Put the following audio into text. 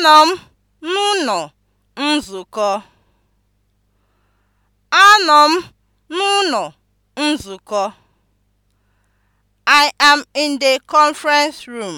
Anọ m n'ụlọ nzukọ. Anọ m n'ụlọ nzukọ. I am in the conference room.